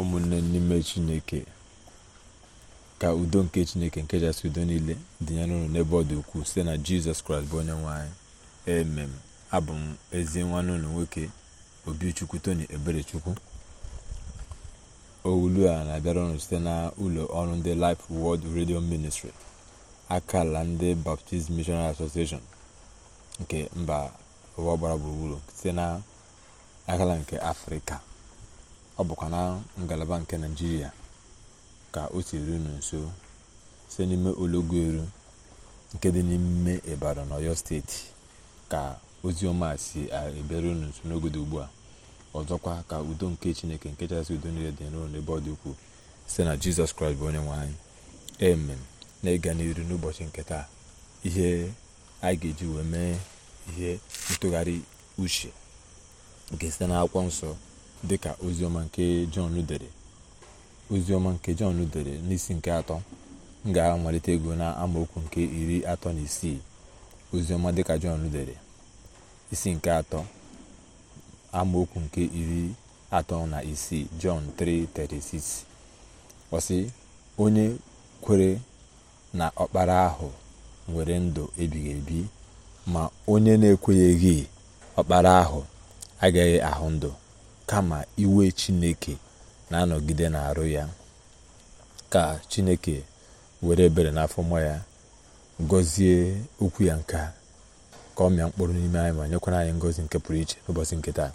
ụmụnne n'ime chineke ka udo nke chineke nke jasị udo niile dịnyere unu n'ebe ọ dị ukwuu site na jizọs kraịst bụ onye nwanyị anyị emem abụ m ezi nwanne ụlọ nwoke obichukwu tony eberechukwu owulu a na-abịara ọnụ site na ụlọ ọrụ ndị Life World Radio Ministry akala ndị Baptist Missionary Association nke mba ụwa gbara gburugburu site na akala nke afrịka ọ bụkwa na ngalaba nke naijiria ka o si unu nso site n'ime ologoelu nke dị n'ime Ibadan Ọyọ steeti ka ozi ọma si ebere unu nso n'oge ugbu a ọzọkwa ka udo nke chineke nke chasị udo niile dị n'ụlọ n'ebe ọ dị ukwuu site na jizọs kraịst bụ onye nwe anyị na-ịga n'iru n'ụbọchị nke taa ihe anyị ga-eji wee mee ihe ntụgharị uche nke site n'akwụkwọ nsọ dịka oziọma nke jọn dere oziọma nke jọn dere n'isi nke atọ m ga-amalite ego na amaokwu nke iri atọ na isii oziọma dịka jọn dere isi nke atọ amaokwu nke iri atọ na isii jọn 3:36 ọ onye kwere na ọkpara ahụ nwere ndụ ebighị ebi ma onye na-ekweghị ọkpara ahụ agaghị ahụ ndụ kama iwe chineke na-anọgide na-arụ ya ka chineke were ebere n'afọ n'afọma ya gọzie okwu ya nke ka ọ mịa mkpụrụ n'ime anyị ma nyekwara anyị ngọzi nke pụrụ iche n'ụbọchị nke taa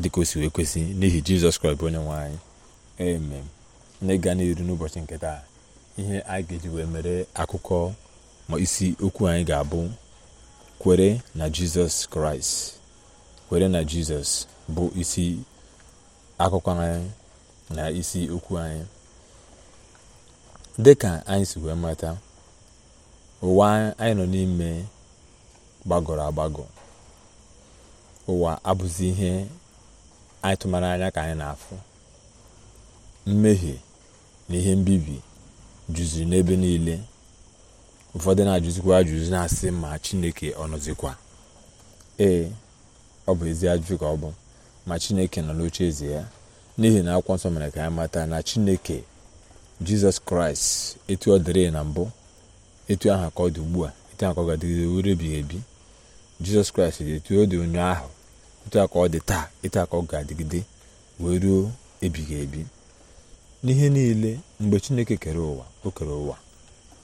dịka o si wee kwesị n'ihi jizọs kraịst bụ onye nwe anyị emem na ịga n'iru n'ụbọchị nke taa ihe anyị ga-eji wee mere akụkọ ma isi okwu anyị ga-abụ kwere na jizọs kraịst kwere na jizọs bụ isi akụkọ anyị na isi okwu anyị dịka anyị si wee mata ụwa anyị nọ n'ime gbagọrọ agbagọ ụwa abụzi ihe anyị tụmara anya ka anyị na-afụ mmehie na ihe mbibi juziri n'ebe niile ụfọdụ na-ajụzikwa ajụjụ na-asị ma chineke ọ nọzikwa ee ọ bụ ezi ajụjụ ka ọ bụ ma chineke nọ n'oche eze ya n'ihi na akwụkwọ nsọ mere ka ya mata na chineke jizọs kraịst etu ọ dịrị na mbụ etu aha ka ọ dị ugbu a etu aha ka ọ ga-adịgide ebighị ebi jizọs kraịst dị etu ọ dị onye ahụ etu aha ka ọ dị taa etu aha ka ọ ga-adịgide wee ruo ebighị ebi n'ihe niile mgbe chineke kere ụwa o kere ụwa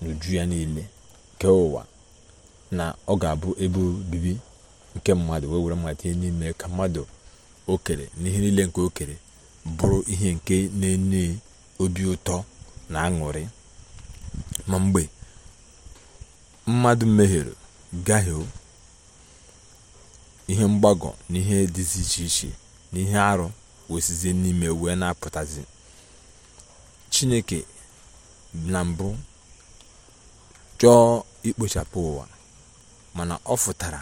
n'uju ya niile kee ụwa na ọ ga-abụ ebe obibi nke mmadụ wee were mmadụ n'ime ka mmadụ okere kere na ihe niile nke okere bụrụ ihe nke na-enye obi ụtọ na aṅụrị ma mgbe mmadụ mehiere gahie ihe mgbagọ na ihe dịzi iche iche na ihe arụ wesizie n'ime wee na-apụtazi chineke na mbụ chọọ ikpochapụ ụwa mana ọ fụtara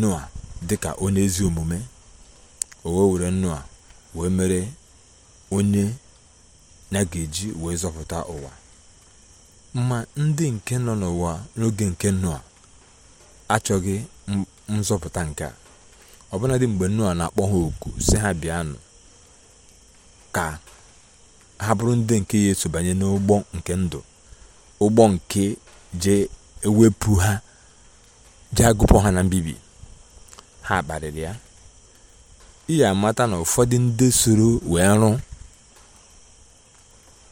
noa dịka onye ezi omume o wee were nnu wee mere onye ya ga-eji wee zọpụta ụwa ma ndị nke nọ n'ụwa n'oge nke nnu achọghị nzọpụta nke a ọbụnadị mgbe nnu na-akpọ ha oku si ha bịanụ ka ha bụrụ ndị nke ya banye n'ụgbọ nke ndụ ụgbọ nke je ewepụ ha jee agụpụ ha na mbibi ha kparịrị ya ị ga-amata na ụfọdụ ndị soro wee rụ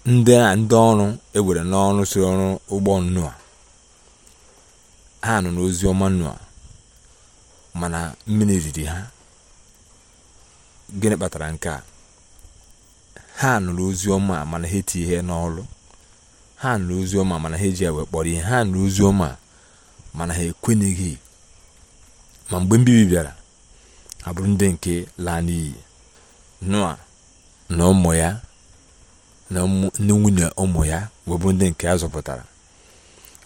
ndị a ndị ọrụ ewere n'ọrụ soro ọrụ ụgbọ Noa ha nọ n'ozi ọma Noa mana mmiri riri ha gịnị kpatara nke a ha nụrụ ozi ọma mana ha eti ihe n'ọrụ ha nụrụ ozi ọma mana ha eji ewe kpọrọ ihe ha nụrụ ozi ọma mana ha ekwenyeghị ma mgbe mbibi bịara abụrụ ndị nke laa n'iyi noa na ụmụ ya na nwunye ụmụ ya webụrụ ndị nke a zọpụtara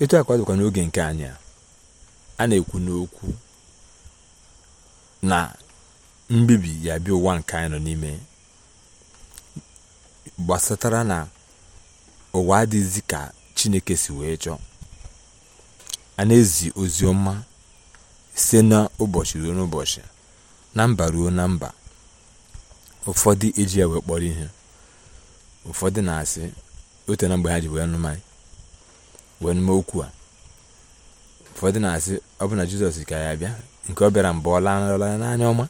etu akwa dịkwa n'oge nke anya a na-ekwu n'okwu na mbibi ya bịa ụwa nke anyị nọ n'ime gbasatara na ụwa adịghịzi ka chineke si wee chọọ a na-ezi ozi ọma site n'ụbọchị ruo n'ụbọchị na mba ruo na mba ụfọdụ eji ya wee kpọrọ ihe ụfọdụ na-asị ote na mgbe ha ji wee nụma wee nụma okwu a ụfọdụ na-asị ọ bụ na jizọs ka ya bịa nke ọ bịara mgbe ọ lanarịla n'anya ọma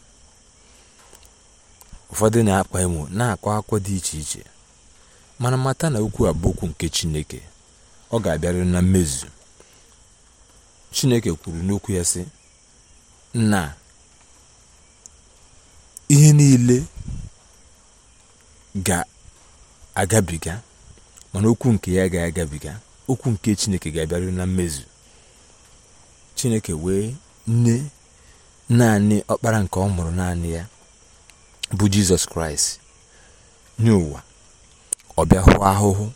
ụfọdụ na-akpa emo na-akọ akụkọ dị iche iche mana mata na okwu a bụ okwu nke chineke ọ ga-abịarịrị na mmezu chineke kwuru n'okwu ya sị nna ihe niile ga-agabiga mana okwu nke ya ga agabiga okwu nke chineke ga-abịaru na mmezu chineke wee nne naanị ọkpara nke ọ mụrụ naanị ya bụ jizọs kraịst nye ụwa ahụhụ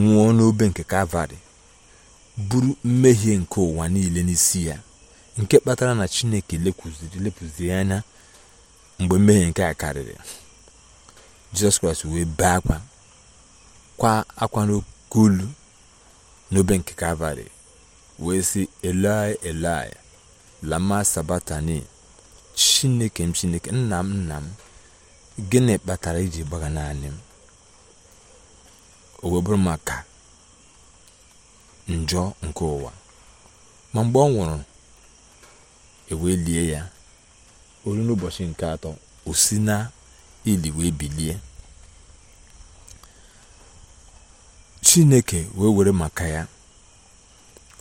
nwụọ n'obe nke kalvarị bụrụ mmehie nke ụwa niile n'isi ya nke kpatara na chineke lepụziri lepụziri anya mgbe mmehie nke a karịrị jizọs kraịst wee bee akwa kwa akwa n'oke n'obe nke kalvarị wee sị elai elai lama sabatani chineke m chineke nna m nna m gịnị kpatara iji gbaga naanị m o wee bụrụ maka njọ nke ụwa ma mgbe ọ nwụrụ ewee lie ya olu n'ụbọchị nke atọ o na ili wee bilie chineke wee were maka ya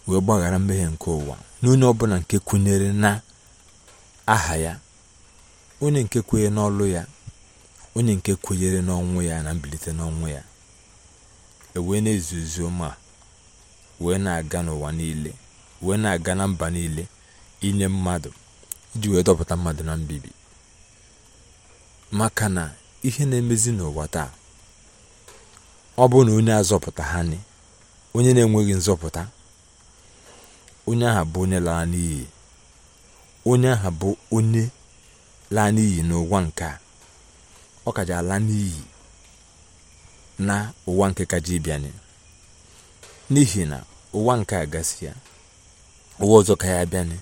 wee gbaghara mmehie nke ụwa n'onye ọbụla nke kwenyere na aha ya onye nke kwenye n'ọlụ ya onye nke kwenyere n'ọnwụ ya na mbilite n'ọnwụ ya ewee na-ezu ma wee na-aga n'ụwa niile wee na-aga na mba niile inye mmadụ iji wee dọpụta mmadụ na mbibi maka na ihe na-emezi n'ụwa taa ọ bụ na onye azọpụta ha ni onye na-enweghị nzọpụta onye aha bụ onye lara n'iyi onye aha bụ onye laa n'iyi n'ụwa nke a ọ kaja ala n'iyi na ụwa nke kaja ịbịanye n'ihi na ụwa nke a gasị ya ụwa ọzọ ka ya bịanye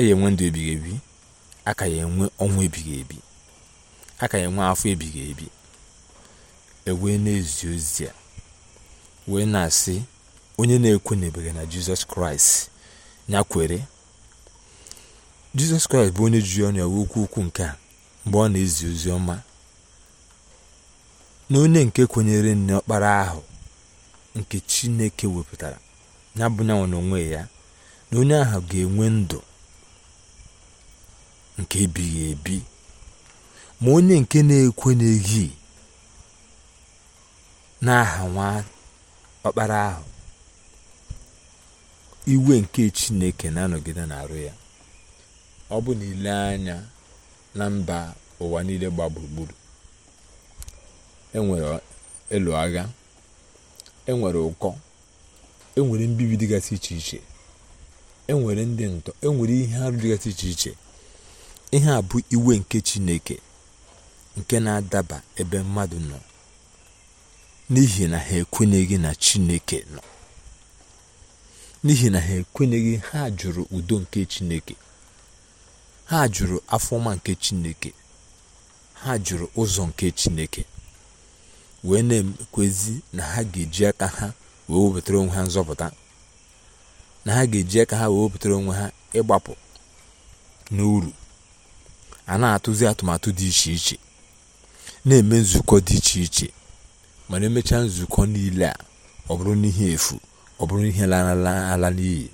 E ya enwe ndụ ebighị ebi aka ya enwe ọnwa ebighị ebi aka ya enwe afọ ebighị ebi ewee na-ezi ozi a wee na-asị onye na-ekwenyebeghị na jizọs kraịst ya kwere jizọs kraịst bụ onye jiri ọnụ ya wee okwu nke a mgbe ọ na-ezi ozi ọma na onye nke kwenyere n'ọkpara ahụ nke chineke wepụtara ya bụ na onwe ya na onye ahụ ga-enwe ndụ nke ebighị ebi ma onye nke na-ekwe n'ehi n'aha nwa ọkpara ahụ iwe nke chineke na-anọgide na-arụ ya ọ bụ na ile anya na mba ụwa niile gba gburugburu enwere elu agha enwere ụkọ enwere mbibi dịgasị iche iche enwere ndị ntọ enwere ihe arụ dịgasị iche iche ihe a bụ iwe nke Chineke nke na-adaba ebe mmadụ nọ n'ihi na ha ekwenyeghị na Chineke nọ n'ihi na ha ekwenyeghị ha jụrụ udo nke Chineke ha jụrụ afọma nke Chineke ha jụrụ ụzọ nke Chineke wee na-ekwezi na ha ga-eji aka ha wee wepụtara onwe ha nzọpụta na ha ga-eji aka ha wee wepụtara onwe ha ịgbapụ n'uru a na-atụzi atụmatụ dị iche iche na-eme nzukọ dị iche iche mana emechaa nzukọ niile a ọ bụrụ n'ihe efu ọ bụrụ ihe ala n'iyi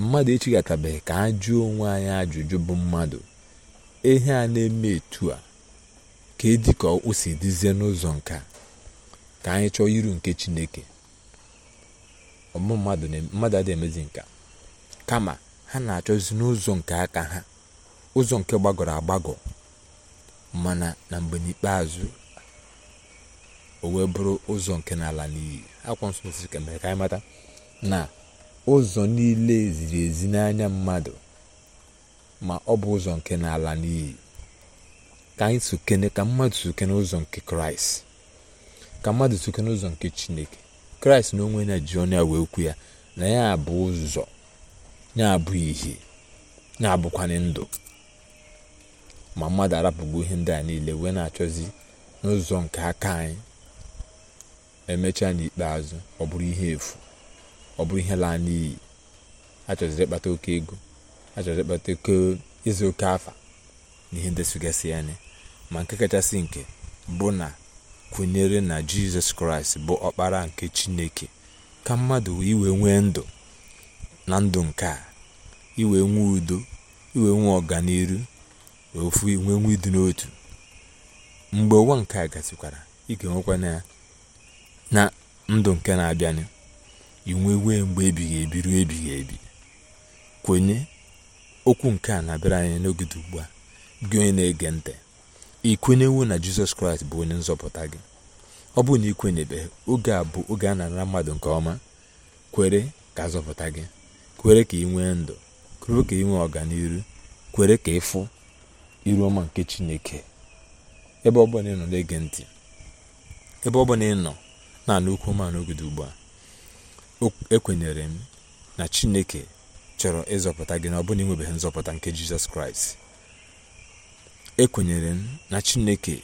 mmadụ echigatabeghị ka a jụọ onwe anyị ajụjụ bụ mmadụ ihe a na-eme etu a ka edi ka o si dizie n'ụzọ nke ka anyị chọọ iru nke chineke ọmụ mmadụ mmadụ adịghị emezi nka kama ha na-achọzi n'ụzọ nke aka ha ụzọ nke gbagọrọ agbagọ mana na mgbe n'ikpeazụ o wee bụrụ ụzọ nke n'ala n'iyi akwụkwọ nsọ mesịrị ka mere ka anyị mata na ụzọ niile ziri ezi n'anya mmadụ ma ọ bụ ụzọ nke n'ala n'iyi ka anyị sokene ka mmadụ sokene ụzọ nke kraịst ka mmadụ sokene ụzọ nke chineke kraịst na onwe ya ji ọnụ ya wee kwu ya na ya bụ ụzọ ya bụ ihe ya abụkwanye ndụ ma mmadụ rapụgbu ihe ndị a niile wee na-achọzi n'ụzọ nke aka anyị emechaa n'ikpeazụ ọ bụrụ ihe efu ọ bụrụ ihe laa n'iyi achọziri ịkpata oke ego achọziri ịkpata oke ịzụ oke afa na ihe ndị sụgasị ya anya ma nke kachasị nke bụ na kwenyere na jizọs kraịst bụ ọkpara nke chineke ka mmadụ iwe nwee ndụ na ndụ nke a iwe nwee udo iwe nwee ọganiru ofu inwe nwa ịdị n'otu mgbe ụwa nke a gasịkwara ị ga-enwekwa na ndụ nke na-abịanụ inwe wee mgbe ebighị ebi ruo ebighị ebi kwenye okwu nke a na-abịara anyị n'oge dị ugbu a gị onye na-ege ntị ị kwenyewo na jizọs kraịst bụ onye nzọpụta gị ọ bụrụ na ị kwenyebeghị oge a bụ oge a na-ara mmadụ nke ọma kwere ka zọpụta gị kwere ka ị nwee ndụ kwere ka ị nwee ọganihu kwere ka ịfụ iru ọma nke chineke ebe ọbụla ị nọ na-ege ntị ebe ọbụla ị nọ na-anụ ọma n'ogede ugbu a ekwenyere m na chineke chọrọ ịzọpụta gị na ọ bụla ịnwebeghị nzọpụta nke jizọs kraịst ekwenyere m na chineke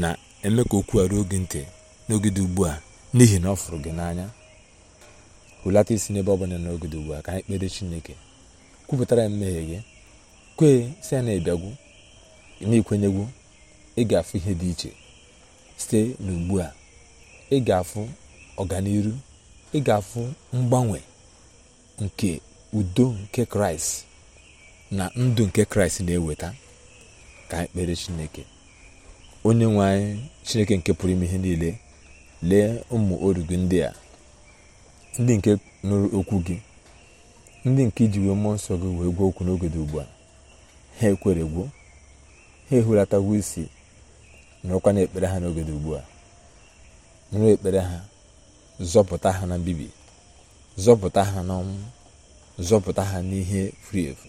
na-eme ka okwu a ruo gị ntị n'ogede ugbu a n'ihi na ọ fụrụ gị n'anya hụlata isi n'ebe ọ bụla n'ogede ugbu a ka anyị kpere chineke kwupụtara ya mmehie gị kwee si na ịbịagwu. n'ikwenyegwu ị ga-afụ ihe dị iche site n'ugbu a ị ga-afụ ọganiru ị ga-afụ mgbanwe nke udo nke kraịst na ndụ nke kraịst na-eweta ka ekpere chineke onye nwe anyị chineke nke pụrụ ime ihe niile lee ụmụ oru ndị a ndị nke nụrụ okwu gị ndị nke iji wee mmụọ nsọ gị wee gwuo okwu n'oge dị ugbu a ha ekweregwo ha ehulatawo isi na-ekpere ha n'oge dị ugbu a nụrụ ekpere ha zọpụta ha na mbibi zọpụta ha n'ọnwụ zọpụta ha n'ihe furu efu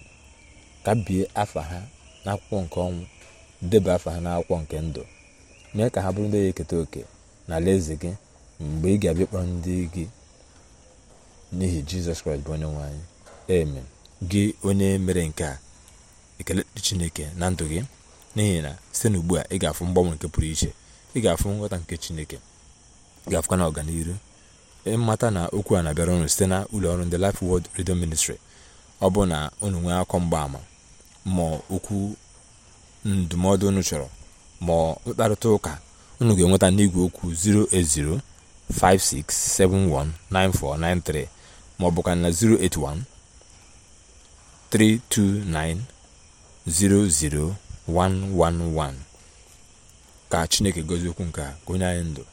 ka bie afa ha n'akwụkwọ nke ọnwụ deba afa ha n'akwụkwọ nke ndụ mee ka ha bụrụ ndị ga-eketa oke na alaeze gị mgbe ị ga-abịa kpọrọ ndị gị n'ihi jizọs kraịst bụ onye nwe anyị gị onye mere nke a ekele chineke na ndụ gị n'ihi na site n'ugbu a ị ga-afụ mgbanwe nke pụrụ iche ị ga-afụ nghọta nke chineke ị ga-afụkwa na ịmata na okwu a na-abịara ụnụ site na ụlọọrụ ọrụ ndị Life Word Radio Ministry ọ bụ na ụnụ nwee akọ mgbaama ma okwu ndụmọdụ ụnụ chọrọ ma mkparịta ụka ụnụ ga-enweta n'igwe okwu 08056719493 ma ọ bụkwa na 081 329 00 111 ka chineke gozi okwu nke a gonye anyị ndụ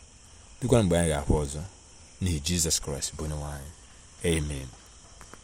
dịkwa mgbe anyị ga-ahụ ọzọ n'ihi jizọs kraịst bụ onye nwe anyị amen